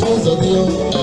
tó sọ ní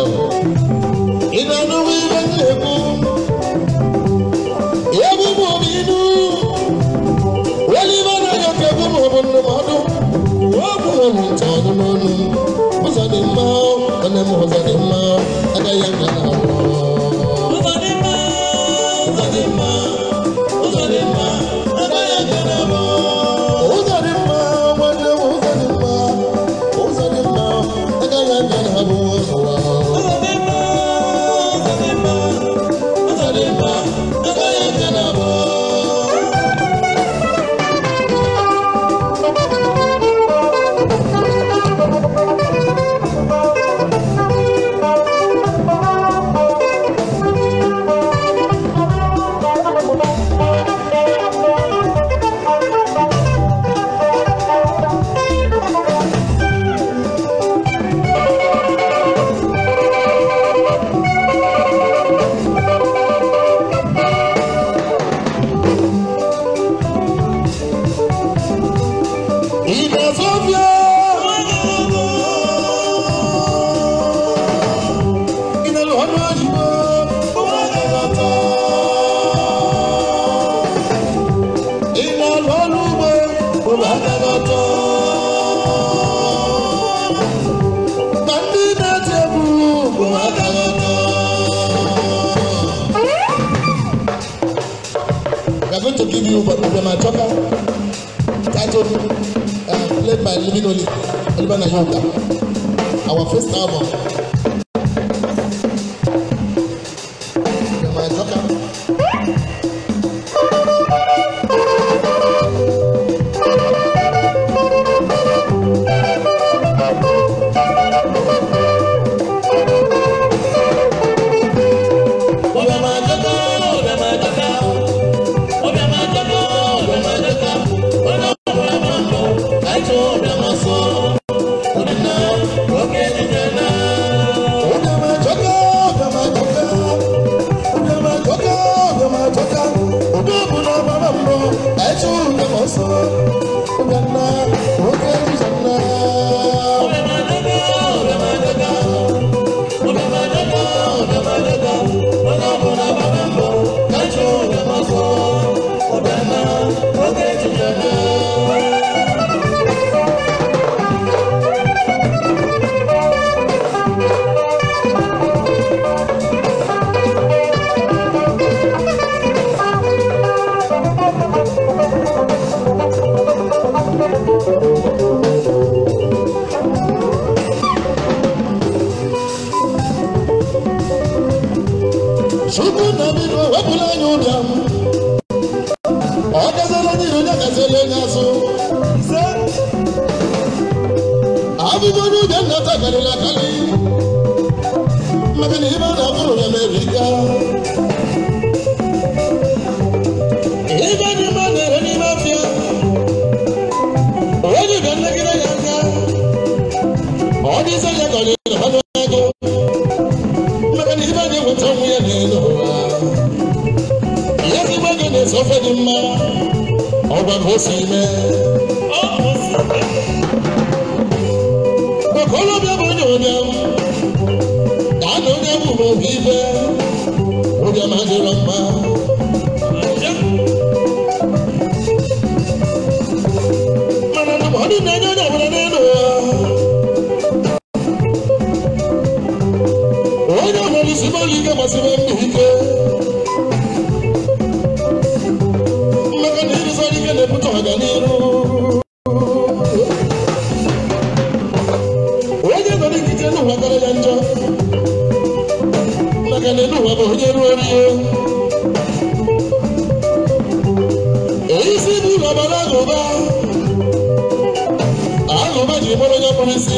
We are going to give you Obama Choka titled uh, played by Living Oli Olivana Yoga. Our first album. yìí má dàbúrò rẹ̀ ká. de èyí sì bí babaláwo bá àlùbájì bọ́lọ́jọ́ pọ́nmi sí.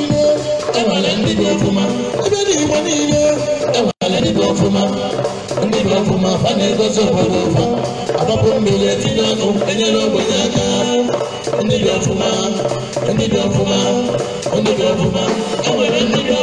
niile enwere ndị dị ọfụma ebe dị igbo niile enwere ndị dị ọfụma ndị dị ọfụma fa na-egosi obodo ụfa agbapụ mmiri etinye ọnụ enyere ogbenye aka ndị dị ọfụma ndị dị ọfụma ndị dị ọfụma enwere ndị dị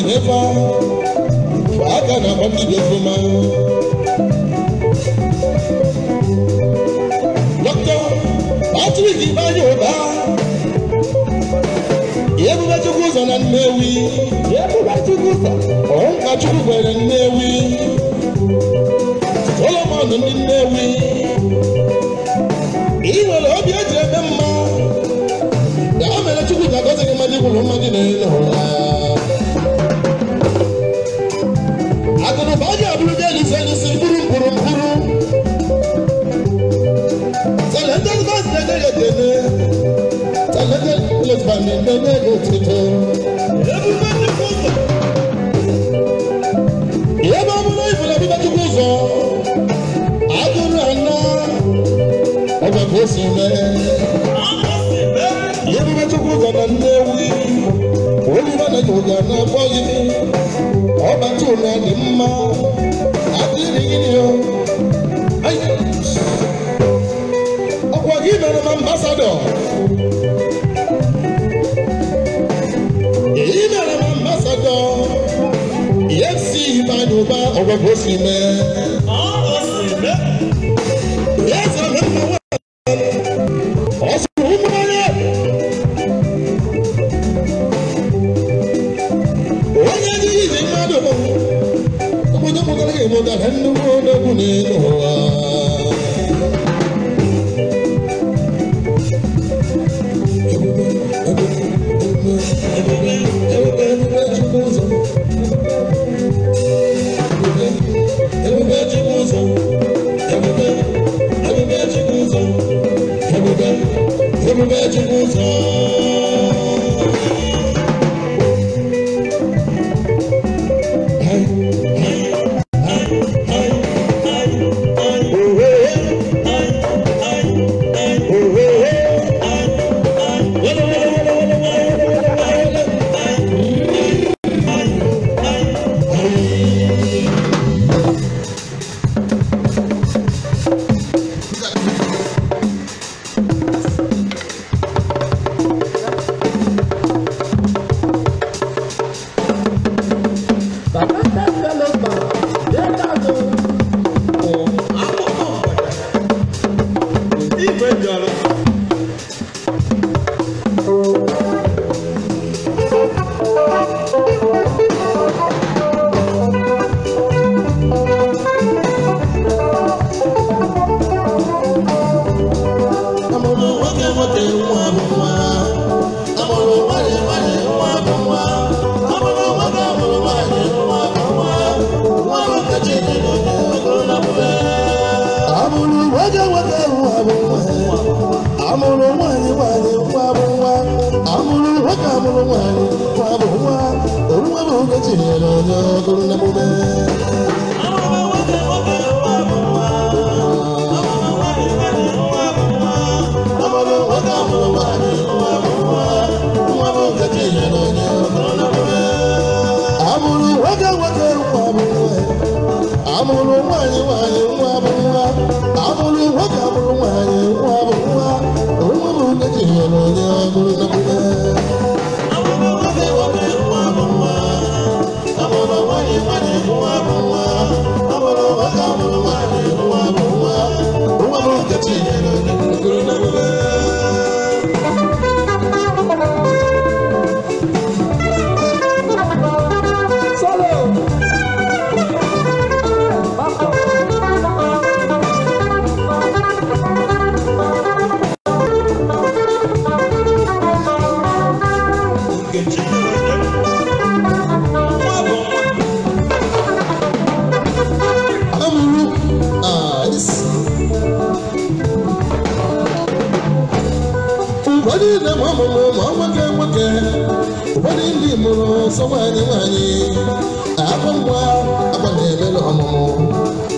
n'efa aka na-agba mmiri ofuma dọkịta Patrick ụba Uba ebube chukwu ụzọ na Nnewi ebube chukwu ọ ọnka chukwu gwere Nnewi Solomon ndị Nnewi ị nwere obi eji ebe mma ya mere chukwu ji agọzi gị mmadụ ikwuru mmadụ na-ele ụra yorùbá ọ̀gbọ̀gbọ̀ sì mẹ́. ma ọ mụrụ ma nwoke nwoke ụfọdụ ndị mụrụ sọ nwaanyị nwaanyị akwa mgba akwa na-eme n'ọmụmụ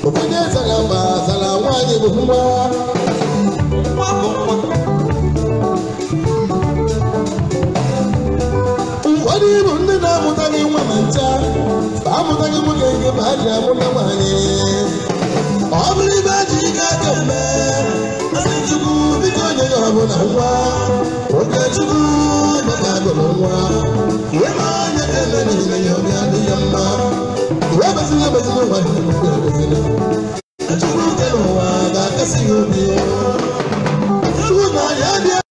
ụfọdụ ezara mba zara nwaanyị bụ mgba ụfọdụ ịbụ ndị na-amụtaghị nwa ma ncha amụtaghị nwoke nke ma ji amụta nwaanyị ọ bụrụ ibe ji ike aka eme onye chukwu biko onye ya ọbụla nwa onye chukwu nwa ihe ma onye eme niile ya obi adịghị mma iwe bezila bezila ụwa ebezila chukwu nke n'ụwa ga-akasị ya obi na ya